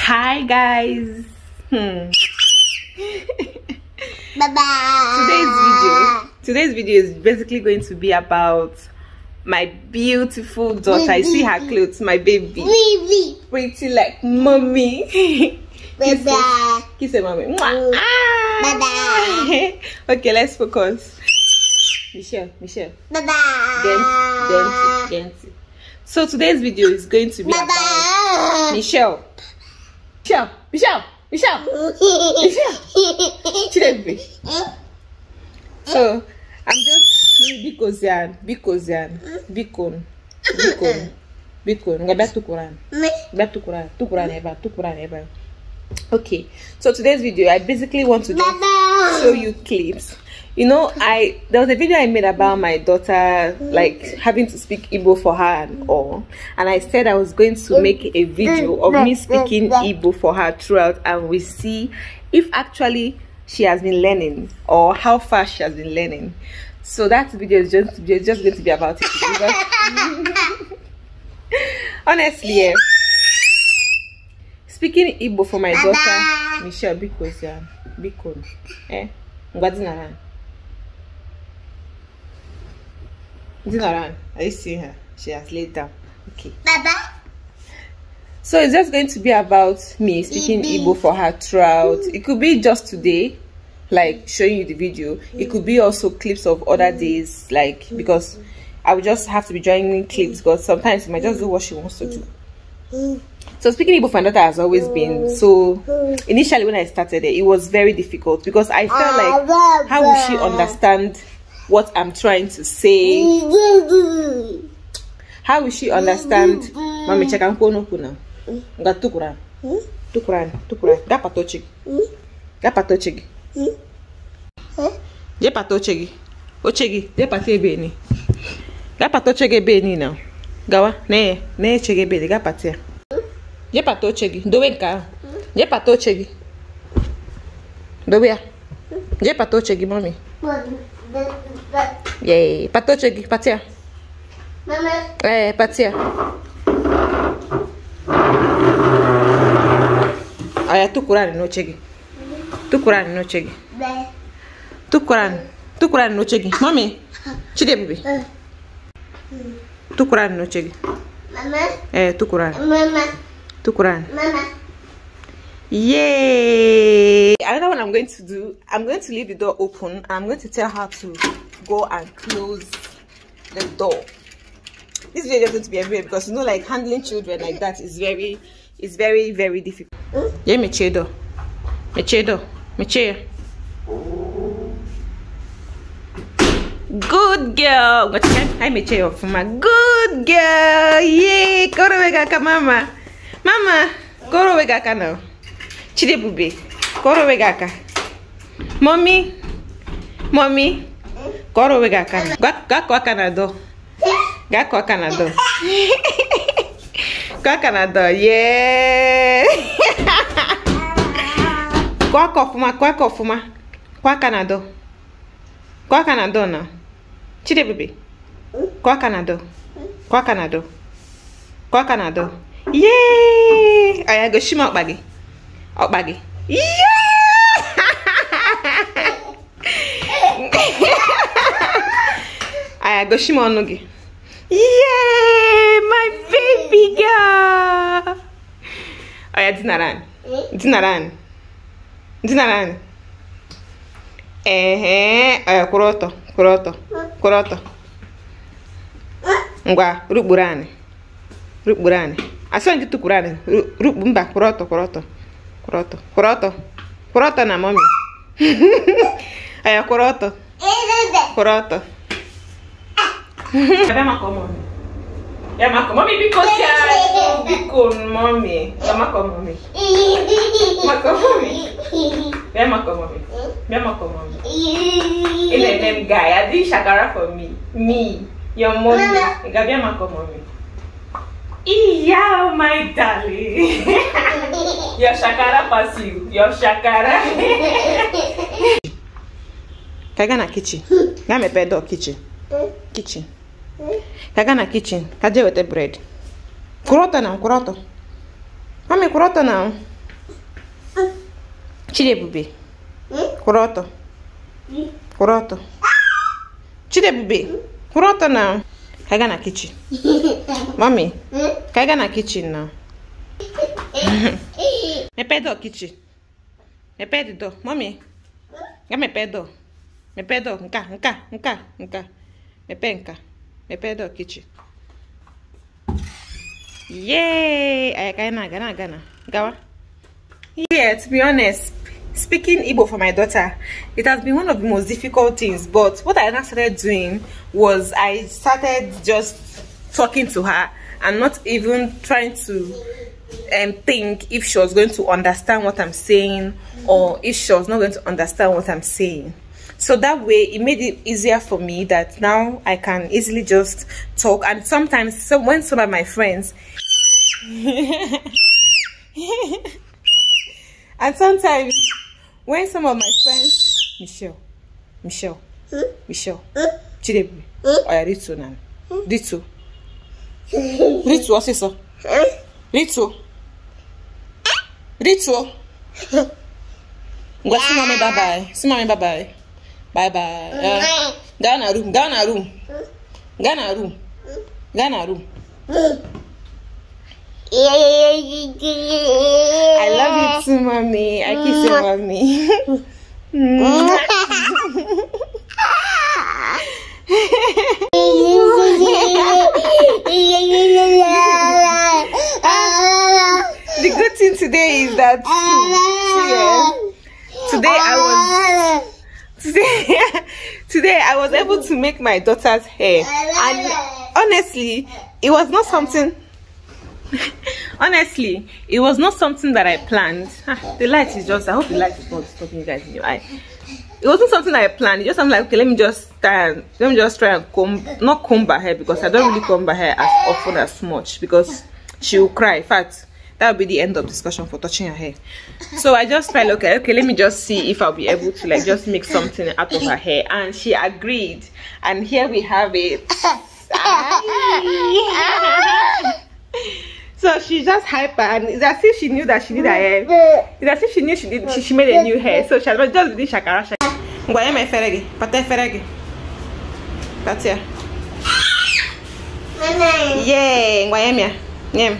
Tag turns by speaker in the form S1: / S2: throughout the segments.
S1: Hi guys. Hmm. bye bye. Today's video. Today's video is basically going to be about my beautiful daughter. Baby. I see her clothes, my baby. baby. Pretty like mommy. Bye bye. kiss her mommy. Mm. Ah. Bye bye. okay, let's focus. Michelle, Michelle. Bye bye. Dance, dance, dance. So today's video is going to be bye about Michelle. Michelle, Michelle, Michelle, Michelle, Chidebe. So, I'm just Bikozian, Bikozian, Bikon, Bikon, Bikon. Nga back to Quran. Back to Quran, to Quran ever, to Quran ever. Okay, so today's video, I basically want to just show you clips you know, I there was a video I made about my daughter like having to speak Igbo for her and all, and I said I was going to make a video of me speaking Igbo for her throughout, and we see if actually she has been learning or how fast she has been learning. So that video is just is just going to be about it. honestly, yeah. Speaking Igbo for my daughter, Michelle Bikosia, Bikon, eh, Ngadinara. Is it around? Are you seeing her? She has laid down. Okay. Baba. So it's just going to be about me speaking Ibi. Igbo for her throughout. Mm. It could be just today, like showing you the video. Mm. It could be also clips of other mm. days, like because I would just have to be joining clips because sometimes she might just do what she wants to do. So speaking Igbo for my daughter has always been so initially when I started it, it was very difficult because I felt ah, like how will she understand what I'm trying to say. How will she understand? Mami, chaka mkono kuna. Nga tukuran. Tukuran, tukuran. Gapa tochigi. Gapa tochigi. Jepa tochigi. Ochegi, jepa te beni. Gapa tochege beni now. Gawa, ne, ne chege beni, gapa te. Jepa tochigi. Dowe nka. Jepa tochigi. Dowe ya. Jepa tochigi, mami. Mami. Yay. Patoche patia. Mama. Eh, patia. Aya tukurani nochegi. Tukurani nochegi. Tukurani. Tukurani nochegi. Mami. Chide bibi. Eh. Tukurani nochegi. Mama. Eh, tukurani. Mama. Tukurani. Mama. yay i don't know what i'm going to do i'm going to leave the door open i'm going to tell her to go and close the door this video is going to be everywhere because you know like handling children like that is very is very very difficult yeah me chedo me chedo me chair? good girl hi me chair for my good girl yay go to mama mama go to now Chidebube kọrọ onwe gị aka mọmi mọmi kọrọ onwe gị aka gaa kọọ aka na dọ gaa kọọ aka na dọ kọọ aka na dọ yee kọọ aka ọfụma kọọ aka ọfụma kọọ aka na dọ kọọ aka na dọ na Chidebube kọọ aka na dọ kọọ aka na dọ kọọ aka na dọ yee ọ ya gosi m ọkpa gị ọkpa gị aya gosi m ọnụ gị yee my baby girl ọya dinara anyị dinara anyị dinara anyị ehe ọya kwụrụ ọtọ kwụrụ ọtọ kwụrụ ọtọ ngwa rukpuru anyị rukpuru anyị asọ gị tukwuru anyị rukpu mba kwụrụ ọtọ kwụrụ ọtọ Croto. Croto. Croto na mami. Aí, croto. Croto. Cadê Marco, mami? É Marco, mami, bico certo. Bico, mami. É Marco, mami. Marco, mami. É Marco, mami. É Marco, mami. Ele é name guy. I did shakara for me. Me. Your mommy. Gabi é Marco, mami. Yeah, my darling. Yoshakara passivo. Yoshakara. Kaga na kitchen. Ga mepee door kitchen. Kitchen. Kaga na kitchen. Ka jee weta bread. Kwụrụ ọtọ na kwụrụ ọtọ. Mami kwụrụ ọtọ na Chidebube. Kwụrụ ọtọ. Kwụrụ ọtọ. Chidebube. Kwụrụ ọtọ na Kaga na kitchen. Mami. Kaga na kitchen na. Me pedo kichi. Me pedo, door. Mommy. Ga mepee door. Mepee door. Nke a, nke a, nke a, nke a. Mepee Yay! Aya ka anyị na na na. Gawa. Yeah, to be honest, speaking Igbo for my daughter, it has been one of the most difficult things. But what I now started doing was I started just talking to her and not even trying to and think if she was going to understand what I'm saying or if she was not going to understand what I'm saying. So that way it made it easier for me that now I can easily just talk and sometimes so when some of my friends and sometimes when some of my friends Michelle Michelle Michelle Chidebu hmm? Oya Ritu Nan Ritu Ritu ọsịsọ Rituo. Rituo. Ngwa si mami bye bye. Si mami bye bye. Bye bye. Uh, gaa na room, gaa na room. Gaa na room. Gaa na room. I love you too, mommy. I kiss you, mommy. that ah. serious. Today I was ah. today, today I was able to make my daughter's hair and honestly it was not something honestly it was not something that I planned ah, the light is just I hope the light is not stopping you guys in your eye it wasn't something I planned. It just I'm like, okay, let me just try and let me just try and comb not comb her hair because I don't really comb her hair as often as much because she will cry. In fact, that will be the end of discussion for touching her hair so i just felt okay okay let me just see if i'll be able to like just make something out of her hair and she agreed and here we have it so she's just hyper and it's as if she knew that she did her hair it's as if she knew she did she, she made a new hair so she had just did shakara shakara ngwanye ma efere gị pata efere gị pata ya yee ngwanye m ya nye m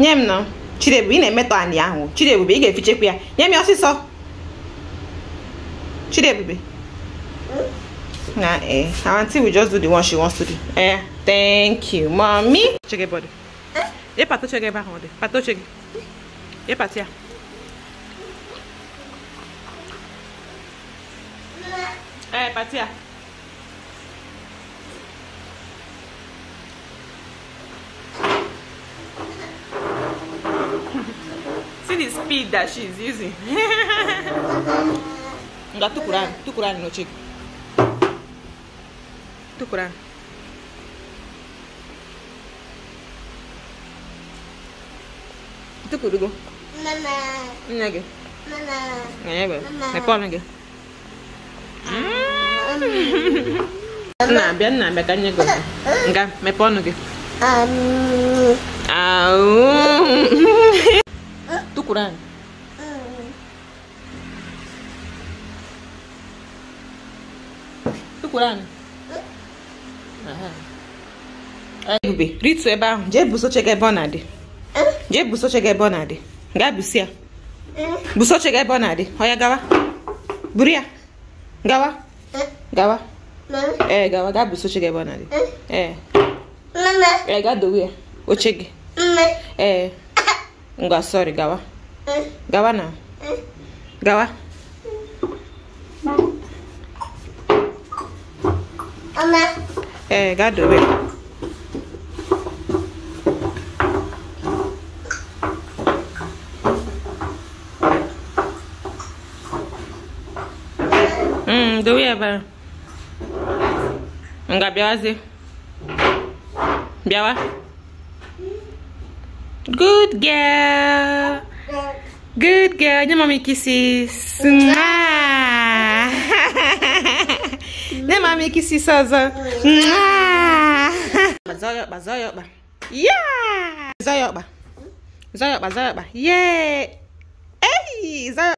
S1: nye m nọ Chidiebube ị na-emetọ anị ahụ Chidiebube ị ga-efichekwa ya nye m ya ọsịsọ Chidiebube na eh our aunty will just do the one she wants to do eh thank you mommy check your body ye pato check your back on pato check ye patia eh patia see the speed that she's using nga tukuran tukuran no chick tukuran tukurugo mama nne gị ọnụ gị nna abịa nna nga Quran? Quran. Ebube, rituo ebe ahụ, jee busoche gị ebe ọ na-adị. Jee busoche gị ebe ọ na-adị. Gaa busi ya. Busoche gị ebe ọ na-adị. Ọ ya gawa. Buru ya. Gawa. Gawa. Ee, gawa, gaa busoche gị ebe ọ na-adị. Ee. Ee, gaa dowe ya. Oche gị. Ee. Ngwa, sọrị, gawa. Gawa na. Gawa. Mama. Eh, ga dobe. Mm, dobe ya bara. gì bịawazie. Bịawa. Good girl. Good girl. Your mommy kisses. Your mommy kisses us. Yeah. Zoyokba. Zoyokba, zoyokba. Yeah. Hey, zoyokba.